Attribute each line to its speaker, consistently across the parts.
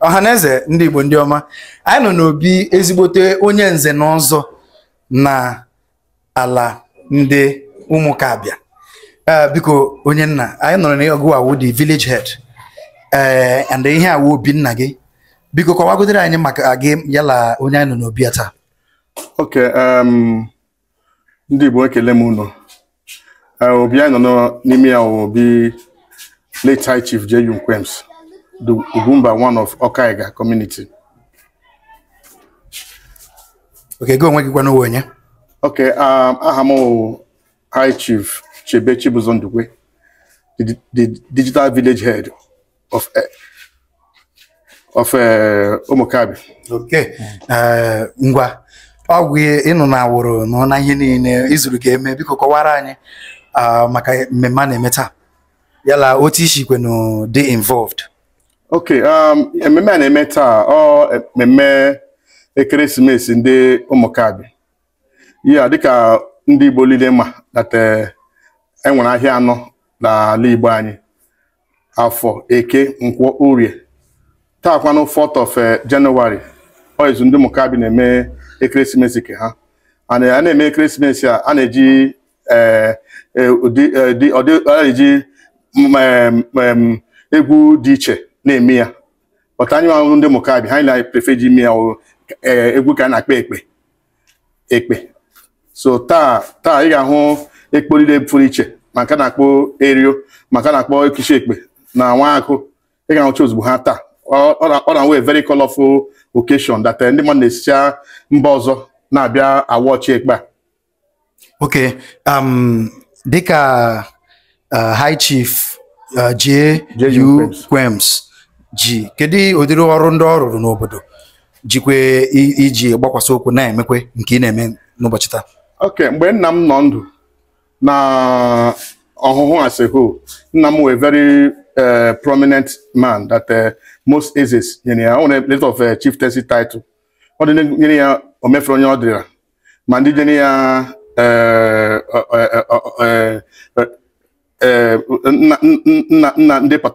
Speaker 1: ọhaneze ndị Igbo ndị ọma anyị nọ n'obi ezigbote onye nze n'ọzọ n'ala na ala ndị abịa. E, biko onye nna anyị nọrọ n'ọgụ Awu dị village head e, and ihe awụ obi nna gị biko kọwagodere anyị maka gị yala onye anyị nọ n'obi
Speaker 2: taa oke ndị Igbo ekele m unu eh, obi anyị nọ n'ime ya obi late high chief J.U. Nquems the Ugwumba one of Okaiga community
Speaker 1: oke gị onwe gị gwana onwe onye
Speaker 2: oke aha m high chief Chebe Chibuzo Ndukwe the, the digital village head of eh, of Umukabi eh, okay
Speaker 1: ngwa ọgwụ ịnụ na awụrụ nọ na ihe niile izuru ga-eme biko kọwara anyị maka mmemme a na-eme taa yala otu isi kwenu dị involved
Speaker 2: ok um, mmemme a na-eme taa ọ mmemme ekeresimesi ndị ụmụkabi ya dịka ndị igbo niile ma data enwere eh, e ahịa anọ n'ala igbo anyị afọ eke nkwọ urie taa kwanụ 4th oizu ndị Mukabi na-eme ekeresimesi nke ha eh, a na-eme ekeresimesi a a na-eji eh, eh, eji mm, mm, egwu dị iche na-eme ya ọta anyị ahụhụ ndị Mukabi ha na-eprefe ji ime ya egwu ka a na-akpa ekpe ekpe so taa taa ị ga-ahụ ekporire pụrụ iche maka na-akpọ erio maka na-akpọ ekichi ekpe na nwa akụ ị ga-ahụcha ozugbo ha taa ọ na nwee very colorful occasion that eh, ndị mmadụ na esi mba ọzọ na-abịa ọchị ekpe a
Speaker 1: okay um, dịka uh, high chief uh, J.U. Kwems ji kedu ụdịrị ọrụ ndị ọ rụrụ n'obodo jikwe iji gbakwasị okwu na-emekwe nke ị na-eme n'ụbọchị taa
Speaker 2: ok mgbe nna m nọ ndụ na ọhụhụ asịhụ nna m very Uh, prominent man that uh, most aces nyere ya ọ a little of uh, tesi title ọ dị ya omefere ọ ma ndị ya uh, uh, ndị bi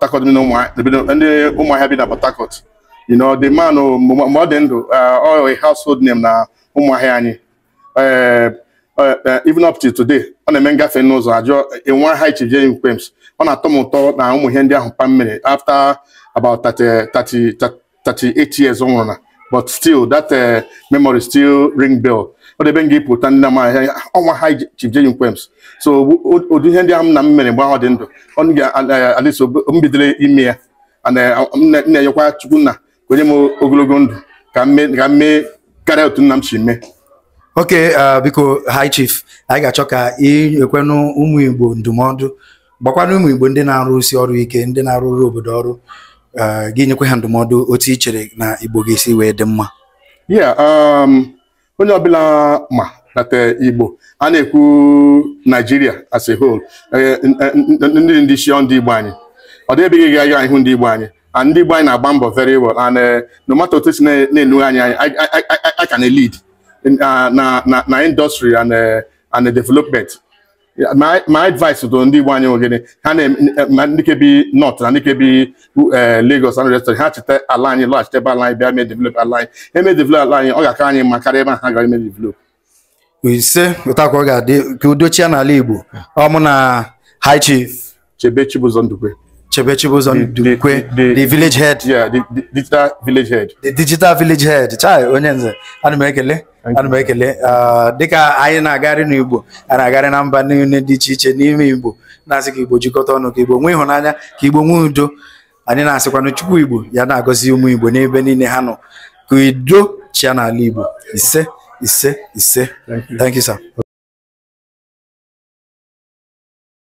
Speaker 2: na Port you know the man oh, mgbe ọ dị ndụ ọ household name na ụmụahịa anyị Eh, eh, even up to today ọ na-eme ngafe n'ụzọ ajụọ eh, enwe ha ichije e kwems ọ na-atọ m ụtọ na ụmụ ihe ndị ahụ pa mmiri after about 38 years ọ nwụrụ na but still that memory still ring bell ọ debe nga ịpụta ndị amaghị ọnwa ha e Chief Kwems so ụdị ihe ndị ahụ m na m mere mgbe ahụ dị ndụ ọ ga-alịso m bidoro ime ya na-enyekwa Chukwu nna onye m ogologo ndụ ka m mee karịa otu nna m si mee
Speaker 1: oke uh, biko hi chief anyị ga-achọ ka ị ekwenụ ụmụ igbo ndụmọdụ gbakwana ụmụ igbo ndị na-arụsi ọrụ ike ndị na-arụrụ obodo ọrụ uh, gị nyekwe ha ndụmọdụ otu i chere na igbo ga-esi wee dị mma
Speaker 2: um, onye ọbụla ma nata igbo a na-ekwu naijiria as a whole eh, ndị ndị isi ndị igbo anyị ọ dịbeghị ga aga ihu ndị igbo anyị and ndị igbo anyị na-agba mbọ very well and eh, no matter otu si na-enugha anyị anyị aka na lead in, uh, na, na, na industry and, uh, and development my my advice to ndị igbo anyị nwe gịnị ha na ndị ke bi north na ndị ke bi uh, Lagos and rest ha cheta ala anyị lọghachite ebe ala anyị bịa mee develop ala anyị eme develop ala anyị ọ ga-aka anyị mma karịa ebe ha gara eme develop
Speaker 1: ise ụtakwa ọ ga-adị ka udochie n'ala igbo ọ mụ na
Speaker 2: high chief chebe chibụzọ ndukwe chebe chibụzọ ndukwe the village head yeah the digital village head
Speaker 1: the digital village head chai onye nze ana m ekele ana ekele uh, dịka anyị na agagharị n'Igbo a na-agarị na mba niile dị iche iche n'ime Igbo na-asị ka Igbo jikọta ọnụ ka Igbo nwee ịhụnanya ka Igbo nwee udo anyị na-asịkwanụ Chukwu Igbo ya na-agọzi ụmụ Igbo n'ebe niile ha nọ ka udo chia n'ala Igbo
Speaker 2: ise ise ise